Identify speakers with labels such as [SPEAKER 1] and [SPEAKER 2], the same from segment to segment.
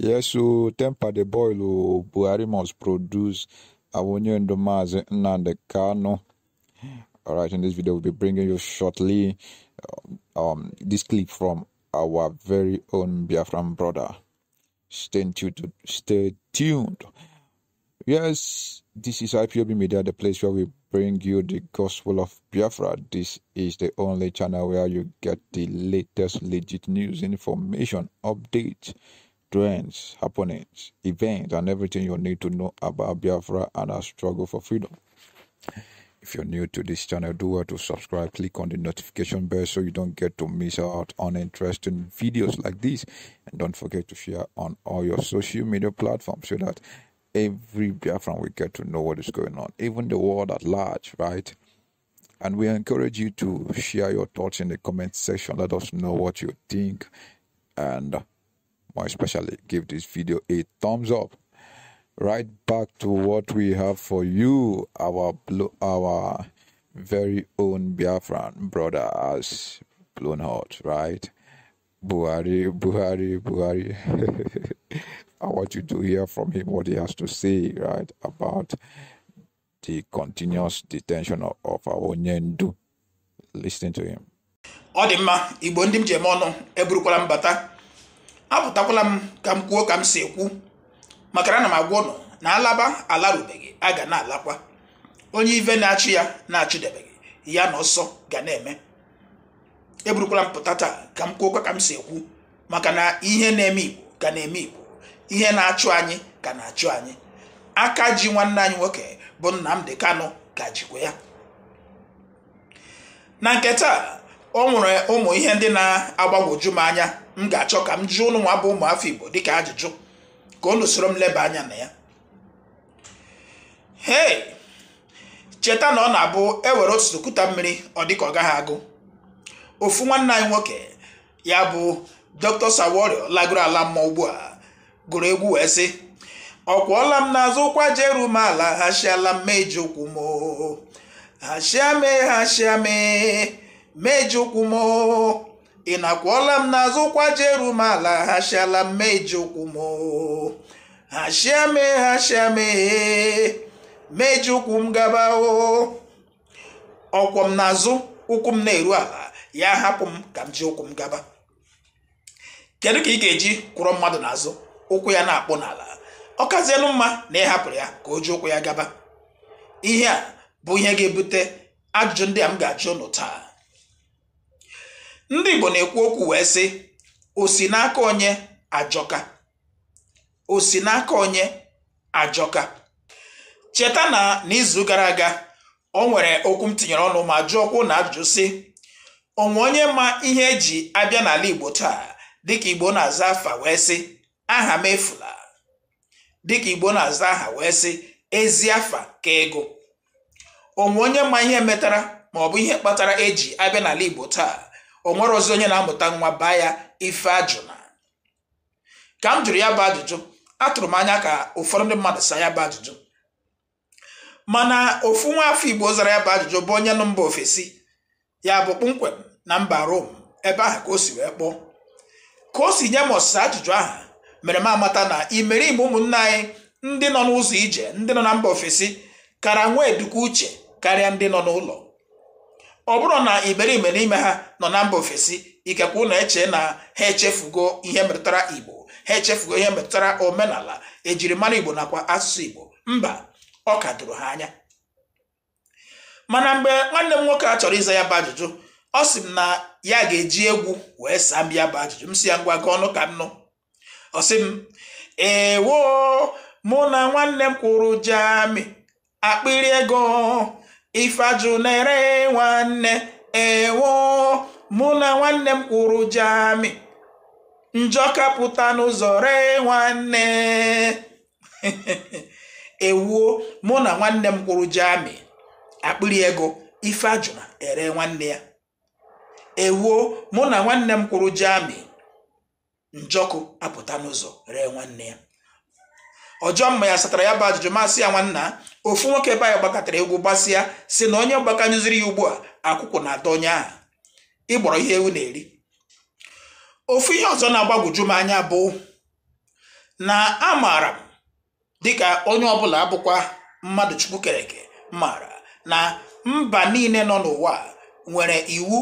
[SPEAKER 1] Yes, o temper the boil o Buhari must produce Awonye Ndomazi Nnamdi Kano. All right, in this video we'll be bringing you shortly um, this clip from our very own Biafran brother. Stay tuned. Stay tuned. Yes, this is IPOB Media, the place where we bring you the gospel of Biafra. This is the only channel where you get the latest legit news, information, updates trends, happenings, events, and everything you need to know about Biafra and our struggle for freedom. If you're new to this channel, do well to subscribe, click on the notification bell so you don't get to miss out on interesting videos like this. And don't forget to share on all your social media platforms so that every Biafran will get to know what is going on, even the world at large, right? And we encourage you to share your thoughts in the comment section. Let us know what you think and especially give this video a thumbs up right back to what we have for you our blue our very own biafran brother has blown out, right buhari buhari buhari i want you to hear from him what he has to say right about the continuous detention of, of our Ndu. listen to him
[SPEAKER 2] apụtakwala m ka m kwuo ka m si ekwu maka na ana m agwa ụnụ na alaba alarubeghị a ga na-alakwa onye ive na achụ ya na achụdebeghị ya na ọsọ ga na-eme eburukwala m pụta taa ka m kwuo ka m si ekwu maka na ihe na-eme igbo ka na-eme igbo ihe na-achụ anyị ka na-achụ anyị aka ji nwanne anyị nwoke bụ Nnamdi Kanu ka jikwa ya na nke taa o nwere ụmụ ihe ndị na-agbagwoju m anya m ga-achọ ka m jụọ ụnụ nwa bụ ụmụ afọ Igbo dịka ajụjụ ka unu soro m leba anya na ya hei cheta na ọ na-abụ ewere otu okuta mmiri ọ dịka ọ gaghị agụ ofu nwanne anyị nwoke ya bụ Dr. Saworio lagoro ala mmụọ ugbu a gụrụ egwu wee sị ọ kwụọla m n'azụ ụkwa jeru m ala ha chiala mma eji okwu m ha chiame ha meje ụkwụ m ị nakwụọla m n'azụ ụkwa jeru m ala hashiala m meje ụkwụ m hachia me hachia me meje ụkwụ m gaba ọkwọ m n'azụ ụkwụ m na-eru ala ya hapụ m ka m ji ụkwụ m gaba kedu ka ị ga-eji kwụrụ mmadụ n'azụ ụkwụ ya na-akpụ n'ala ọ kazienụ mma na ị hapụrụ ya ka o ji ụkwụ ya gaba ihe a bụ ihe ga-ebute ajụjụ ndị a m ga-ajụ ụnụ taa ndị Igbo na-ekwu okwu wee sị osi n'aka onye ajọka osi n'aka onye ajọka cheta na n'izu gara aga o nwere okwu m tinyere ọnụ ma jụọkwuo na ajụjụ sị onwe onye ma ihe eji abịa n'ala Igbo taa dịka Igbo na-aza afa wee sị aha m efula dịka Igbo na-aza aha wee sị ezi afa ka ego onwe onye ma ihe metara ma ọ bụ ihe kpatara eji abịa n'ala Igbo taa o nwere ozi onye na-amụta nwa baa ya ife ajụna ka m jụrụ ya bụ ajụjụ atụrụ m anya ka ụfọdụ ndị mmadụ saa ya bụ ajụjụ mana ofu nwa afọ igbo zara ya bụ ajụjụ bụ onye nụ mba ofesi ya bụ kpụmkwem na mba rom ebe ahụ ka o si wee kpọọ ka o si nye m ọsịsa ajụjụ ahụ mere m amata na imerime ụmụnne anyị ndị nọ n'ụzọ ije ndị nọ na mba ofesi kara nwee eduku uche karịa ndị nọ n'ụlọ ọ bụrụ na iberibe n'ime ha nọ na mba ofesi ikekwa ụlọ e eche na ha echefugo ihe metụtara igbo ha echefugo ihe metụtara omenala ejirimara igbo nakwa asụsụ igbo mba ọ ka doro ha anya mana mgbe nwanne m nwoke a chọrọ ịza ya bụ ajụjụ ọ sị m na ya ga-eji egwu wee saa m ya bụ ajụjụ m si ya ngwa gị ọnụ ka m nụ ọ sị m ewo mụ na nwanne m kwụrụ jami akpịrị ego ifeajụ na-ere nwanne ewo mụ na nwanne m kwụrụ jami njọ kapụta n'ụzọ ree nwanne ewuo mụ na nwanne m kwụrụ jami akpịrị ego ifeajụ na ere nwanne ya ewuo mụ na nwanne m kwụrụ jami njọkụ apụta n'ụzọ ree nwanne ya ọjọọ mma ya satara ya bụ ajụjụ masị ya nwanna ofu nwoke be anyị gbakọtara egwu gbasịa si na onye gbakanyụziri ya ugbu a akwụkwụ na-ata onye ahụ ịgbọrọ ihe ewu na-eri ofu ihe ọzọ na-agbagwoju m anya bụ na amaara m dịka onye ọbụla abụkwa mmadụ chukwu kereke maara na mba niile nọ n'ụwa nwere iwu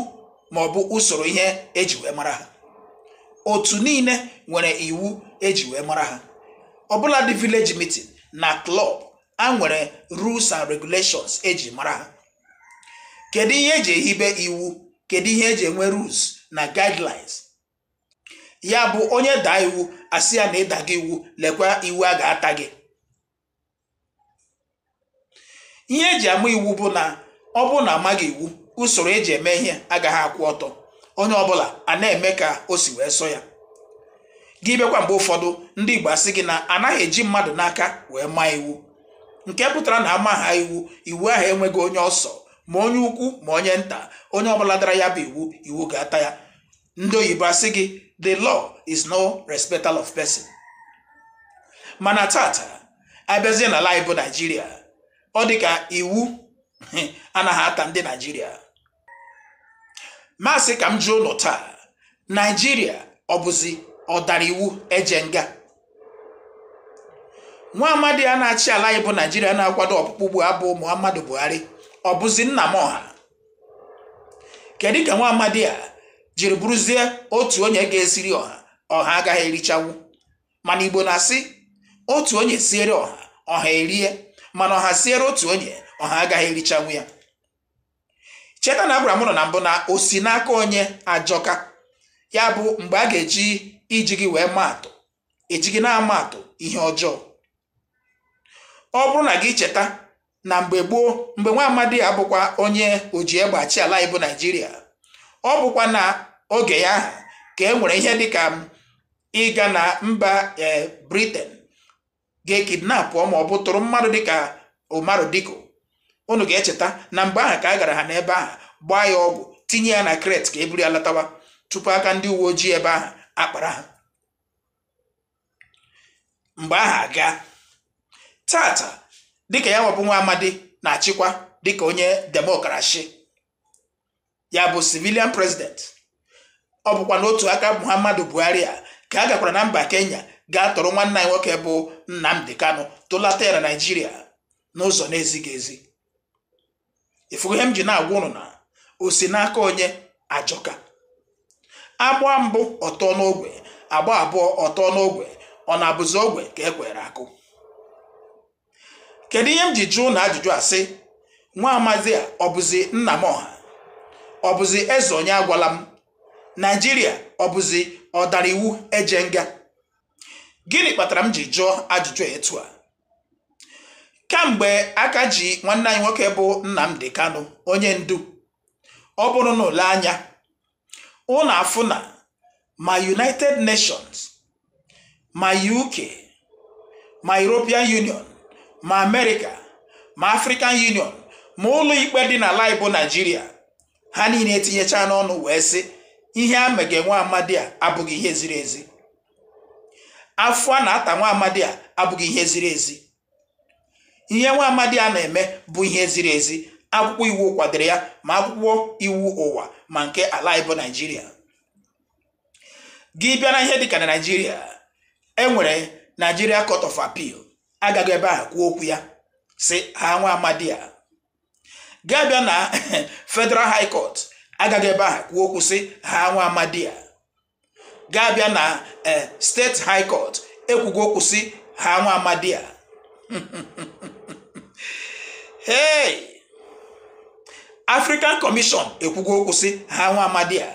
[SPEAKER 2] ma ọ bụ usoro ihe eji wee mara ha otu niile nwere iwu eji wee mara ha ọbụla dị village meeting na klọb a nwere rules and regulations eji mara ha kedu ihe eji ehibe iwu kedu ihe eji enwe rules na guidelines ya bụ onye daa iwu asị ya na ịda gị iwu lekwa iwu a ga-ata gị ihe eji ama iwu bụ na ọ bụ na amaghị iwu usoro eji eme ihe agaghị akwụ ọtọ onye ọbụla a na-eme ka o si wee sọ ya gị bịakwa mgbe ụfọdụ ndị Igbo asị gị na anaghị eji mmadụ n'aka wee maa iwu nke pụtara na ama ha iwu iwu ahụ enweghị onye ọsọ ma onye ukwu ma onye nta onye ọbụla dara ya bụ iwu iwu ga-ata ya ndị oyibo asị gị the law is no respecter of person mana tata abịazie n'ala anyị bụ naijiria ọ dị iwu anaghị ata ndị naijiria masị ka m jụọ ụlọ taa naijiria ọ bụzi ọ dara iwu eje nga nwa amadi a na-achị ala anyị bụ naijiria na-akwado ọkpụkpụ bụ abụ muhammadu buhari ọ bụzi nna m ọha kedu ka nwa amadi a jiri bụrụzie otu onye ga-esiri ọha ọha agaghị erichanwu mana igbo na-asị otu onye siere ọha ọha erie mana ọha siere otu onye ọha agaghị erichanwu ya cheta na abram nọ na mbụ na osi n'aka onye ajọka ya bụ mgbe a ga-eji iji gị wee atụ eji gị na atụ ihe ọjọọ ọ bụrụ na gị cheta na mgbe gboo mgbe nwa amadi ya bụkwa onye oji egbe ala ibu naijiria ọ bụkwa na oge ya ka e nwere ihe dịka ịga na mba ee briten ga-ekidnapụ ma ọ bụ tụrụ mmadụ dịka umaru diko unu ga-echeta na mgbe ahụ ka a gara ha n'ebe ahụ gbaa ya ọgwụ tinye ya na kret ka e buru ya latawa tupu aka ndị uwe ojii ebe ahụ akpara ha mgbe aha aga tata dịka ya nwabụ nwa amadi na-achịkwa dịka onye demokrashi ya bụ civilian president ọ bụkwa n'otu aka muhammadu buhari a ka a gakwara na mba kenya gaa tọrọ nwanne anyị nwoke bụ nnamdi kanu tụlata ya na naijiria n'ụzọ na-ezighị ezi ifugo m ji na-agwa ụnụ na osi n'aka onye ajọka agba mbụ ọtọ n'ogwe agba abụọ ọtọ n'ogwe ọ na-abụzi ogwe ka e kwere akụ kedu ihe m ji jụụ na ajụjụ a sị nwa amazi a ọ bụzi nna m ọha ọ bụzi eze onye agwala m naijiria ọ bụzi ọ dara iwu eje nga gịnị kpatara m ji jụọ ajụjụ etu a kamgbe aka ji nwanne anyị nwoke bụ Nnamdi Kano onye ndu ọ bụrụ na ole anya ụlọ afụ na ma united nations ma uk ma european union ma america ma african union ma ụlọ ikpe dị n'ala igbo naijiria ha niile etinyecha n'ọnụ wee sị ihe a mege nwa amadi a abụghị ihe ziri ezi afọ a na-ata nwa amadi a abụghị ihe ziri ezi ihe nwa amadi a na-eme bụ ihe ziri ezi akwụkwọ iwu kwadoro ya ma akwụkwọ iwu ụwa ma nke ala ịbụ naijiria gị bịa na ihe dịka na naijiria enwere naijiria court of Apil agaghị ebe a kwuo okwu ya si ha nwa amadi ya gaa bịa na federal high court agaghị ebe a kwuo okwu si ha nwa amadi ya gaa bịa na e, steeti high court ekwugo okwu si ha nwa amadi ya African Commission ekwugo okwu sị ha nwa amadi a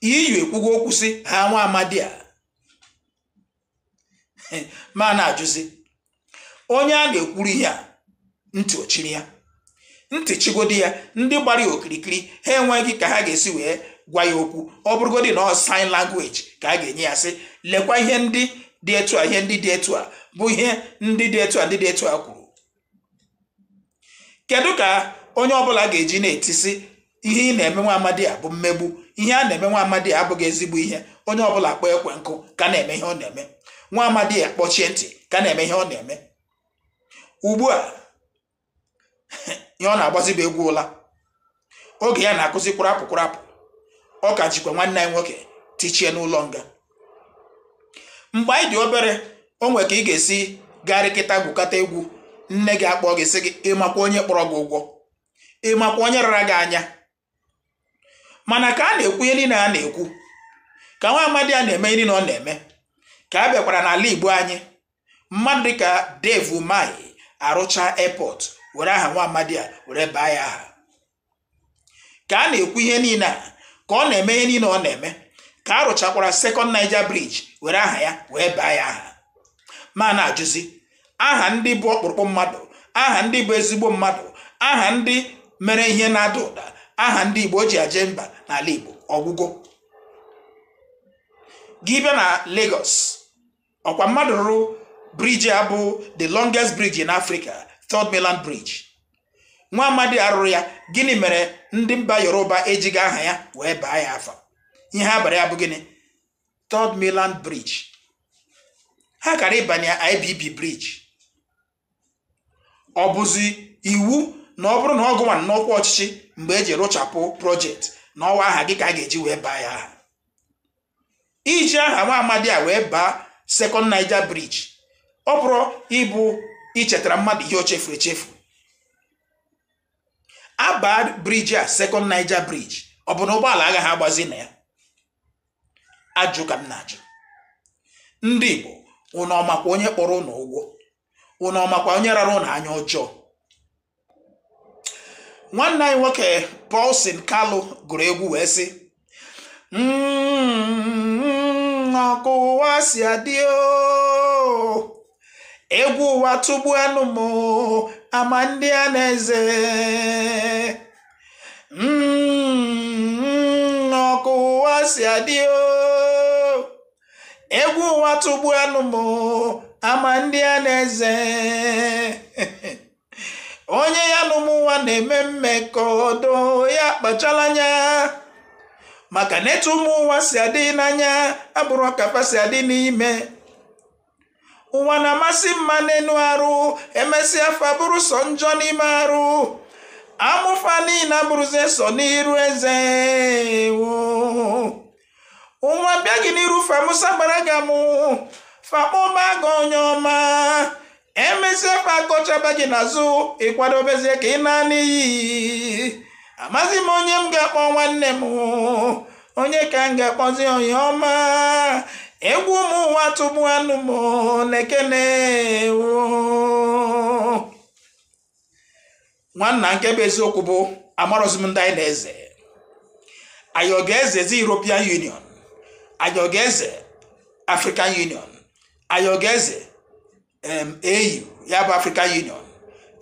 [SPEAKER 2] e ekwugo okwu sị ha nwa amadi a ma na-ajụzi onye a na-ekwuru ihe a ntị ochiri ya ntị chigodi ya ndị gbara ya okirikiri ha enweghị ka ha ga-esi wee gwa ya okwu ọ bụrụgodị na ọ sign language ka a ga-enye ya sị lekwa ihe ndị dị etu a ihe ndị dị etu a bụ ihe ndị dị etu a ndị dị etu a kwuru kedu ka onye ọbụla ga-eji na-etisi ihe ị na-eme nwa amadi a bụ mmegbu ihe a na-eme nwa amadi abụghị ezigbo ihe onye ọbụla kpọọ ekwe nkụ ka na-eme ihe ọ na-eme nwa amadi akpọchie kpọchie ntị ka na-eme ihe ọ na-eme ugbu a ihe ọ na-agbazi bụ egwu ụla oge ya na-akụzi kpụrapụ kpụrapụ ọ ka jikwa nwanne anyị nwoke tichie n'ụlọ nga mgbe anyị dị obere o nwere ka ị ga-esi garịkịta gwukọta egwu nne gị akpọ gị sị gị ịmakwa onye kpọrọ gị ụgwọ ịmakwa onye rara gị anya mana ka a na-ekwu ihe niile a na-ekwu ka nwa amadi a na-eme ihe niile ọ na-eme ka a bịakwara n'ala igbo anyị mmadụ dịka devu mai arụcha airport were aha nwa amadi a were baa ya aha ka a na-ekwu ihe niile a ka ọ na-eme ihe niile ọ na-eme ka a rụchakwara second Niger were aha ya wee baa ya aha ma na-ajụzi aha ndị bụ ọkpụrụkpụ mmadụ aha ndị bụ ezigbo mmadụ aha ndị mere ihe na-ada ụda aha ndị igbo ji aje mba n'ala igbo ọgwụgwọ gị bịa na Lagos ọkwa mmadụ rụrụ briji a bụ the longest bridge in Africa Third Mainland Bridge nwa amadi arụrụ ya gịnị mere ndị mba Yoruba ejighị aha ya wee baa ya afọ, ihe abalị ya bụ gịnị Third Mainland Bridge ha kara ịbanye IBB bridge ọ bụzi iwu na ọ bụrụ na ọ gụnwa n'ọkwa ọchịchị mgbe eji rụchapụ projekti na ọwa aha gị ka a ga-eji wee baa ya iji aha nwa amadi a wee baa sekọnd naija briji ọ bụrụ ịbụ ichetara mmadụ ihe o chefuru echefu abaa briji a sekọnd naija briji ọ bụ na ụgbọala agaghị agbazi na ya ajụ ka m na-ajụ ndị Igbo unu onye kpọrọ ụnọ ụgwọ ụnụ ọmakwa onye rara unu anya ọjọọ nwanne anyị nwoke Paulson Kalụ gụrụ egwu wee sị mm, ọkụ ụwa si adị egwu ụwa tụgbu anụ m ama ndị a na-eze mm, ọkụ ụwa si adị egwu ụwa tụgbu anụ m ama ndị a na-eze onye ya na ụmụnwa na-eme ọdụ ya kpachala anya maka na etu ụmụnwa si adị n'anya abụrụ ọkapa si adị n'ime ụwa na-amasị mma n'elu arụ emesịa afọ bụrụ sọ njọ n'ime arụ amụfa niile abụrụzie sọ n'iru eze nwa bịa gị n'iru famusa gbara gị amụ fakpọba gị onye ọma emesịa fakọchaba gị n'azụ ịkwadobezie ka ị na-ana iyi m onye m ga-akpọ nwanne m onye ka m ga-akpọzi onye ọma egwu ụmụ ụwa tụbu anụ m na-ekene nwanna nke bụ eziokwu bụ amarọzi m ndị anyị na-eze anyị ọ ga European Union anyị ọ ga-eze African Union ayogeze um, au ya bụ african union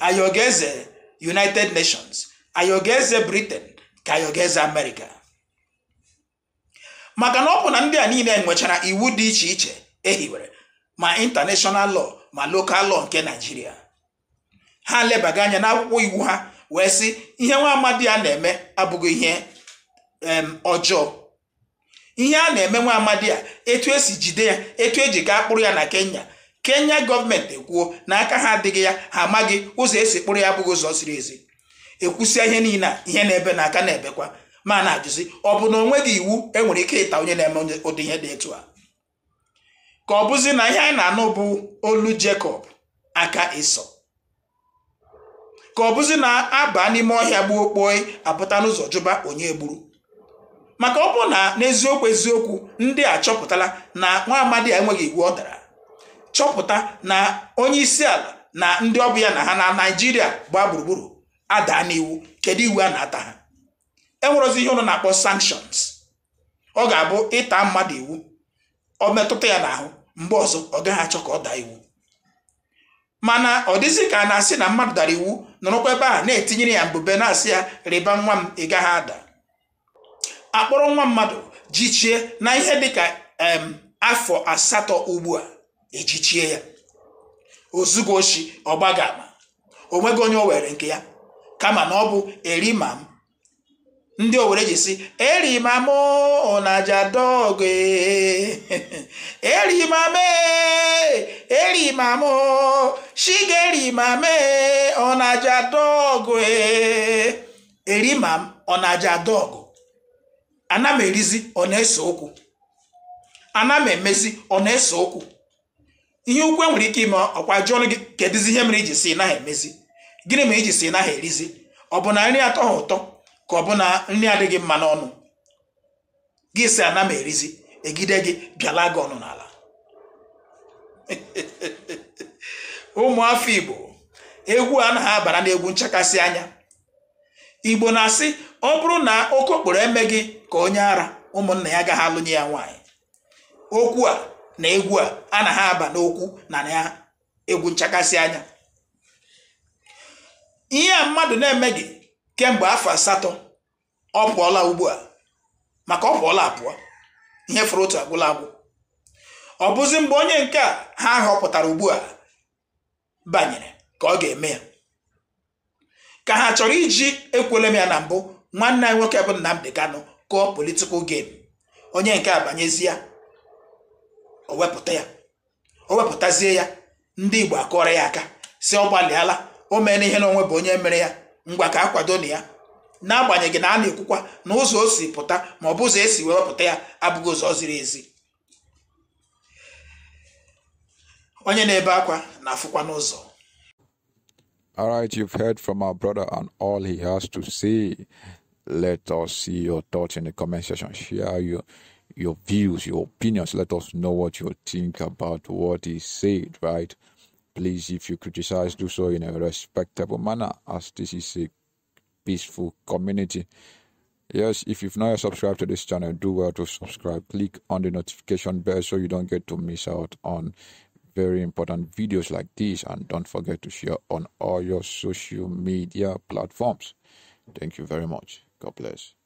[SPEAKER 2] ayogeze united nations ayogeze britain ka ayogeze america maka na ọ bụ na ndị a niile nwechara iwu dị iche iche ehiwere ma international law ma local law nke naijiria ha lebaga anya n'akwụkwọ iwu ha wee sị ihe nwa amadi a na-eme abụghị ihe um, ọjọọ ihe a na-eme nwa amadi a etu esi jide ya etu eji gaa kpụrụ ya na kenya kenya gọọmenti ekwuo na aka ha adịghị ya ha amaghị ụzọ esi kpụrụ ya abụghị ụzọ ziri ezi ekwusịa ihe niile a ihe na-ebe na aka na-ebekwa ma na-ajụzi ọ bụ na onweghị iwu enwere ike ịta onye na-eme ụdị ihe dị etu a ka ọ bụzi na ihe anyị na-anụ bụ olu Jekọb aka ịsọ ka ọ bụzi na aba n'ime ọhịa gbuo okpoe apụta n'ụzọ jụba onye gburu maka ọ bụ na n'eziokwu eziokwu ndị a chọpụtala na nwa amadi a enweghị iwu ọ dara chọpụta na onye isi ala na ndị ọbụ ya na ha na naijiria gbaa gburugburu adaa n'iwu kedu iwu a na-ata ha enwerozi ihe ụlọ na-akpọ sanctions ọ ga-abụ ịta mmadụ iwu ọ metụta ya n'ahụ mgbe ọzọ ọ gaghị achọ ka ọ daa iwu mana ọ dịzị ka a na-asị na mmadụ dara iwu nọrọkwa ebe a na-etinyere ya mbube na-asị ya rịba nwa m ị gaghị ada akpọrọ nwa mmadụ jichie na ihe dịka ka afọ asatọ ugbu a ejichie ya ozugo oshi ọgbagama ama onweghị onye o were nke ya kama na ọ bụ m ndị owere ji si erimam onajadog erimam erimam e. shigerimam onajadog e. erimam onajadog ana m erizi ọ na-ese okwu ana m emezi ọ na-ese okwu ihe ukwu e nwere ike ime ọkwa jụọ ọnụ gị kedụzi ihe mere iji si naghị emezi gịnị mere iji si naghị erizi ọ bụ na nri atọ ha ụtọ ka ọ bụ na nri adịghị mma n'ọnụ gị si ana m erizi egide gị bịala gị ọnụ n'ala ụmụafọ Igbo egwu a naghị abara n'egwu nchakasị anya igbo na-asị ọ bụrụ na okokporo eme gị ka onye ara ụmụnna ya agaghị alụnye ya nwaanyị okwu a na egwu a a na ha aba n'okwu na ya egwu nchakasị anya ihe a mmadụ na-eme gị kemgbe afọ asatọ ọ pụọla ugbu a maka ọ pụọla apụọ ihe fụrụ otu agwụla agwụ ọ bụzi mgbe onye nke a ha họpụtara ugbu a banyere ka ọ ga-eme ya ka ha chọrọ iji ekwele m ya na mbụ nwanne anyị nwoke bụ Nnamdi Kanu kụọ politikal game onye nke a banyezie o wepụta ya o wepụtazie ya ndị Igbo akọrọ ya aka si ọ gbalịala o mere ihe onwe bụ onye mere ya ngwa ka a kwado na ya n'agbanyeghị na a na-ekwukwa na ụzọ o si pụta ma ọ bụ ụzọ esi wepụta ya abụghị ụzọ ziri ezi onye na-ebe akwa na-afụkwa n'ụzọ
[SPEAKER 1] All right, you've heard from our brother and all he has to say. Let us see your thoughts in the comment section. Share your your views, your opinions. Let us know what you think about what he said, right? Please, if you criticize, do so in a respectable manner, as this is a peaceful community. Yes, if you've not yet subscribed to this channel, do well to subscribe. Click on the notification bell so you don't get to miss out on very important videos like this and don't forget to share on all your social media platforms. Thank you very much. God bless.